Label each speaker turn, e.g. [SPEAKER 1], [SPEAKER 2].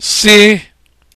[SPEAKER 1] si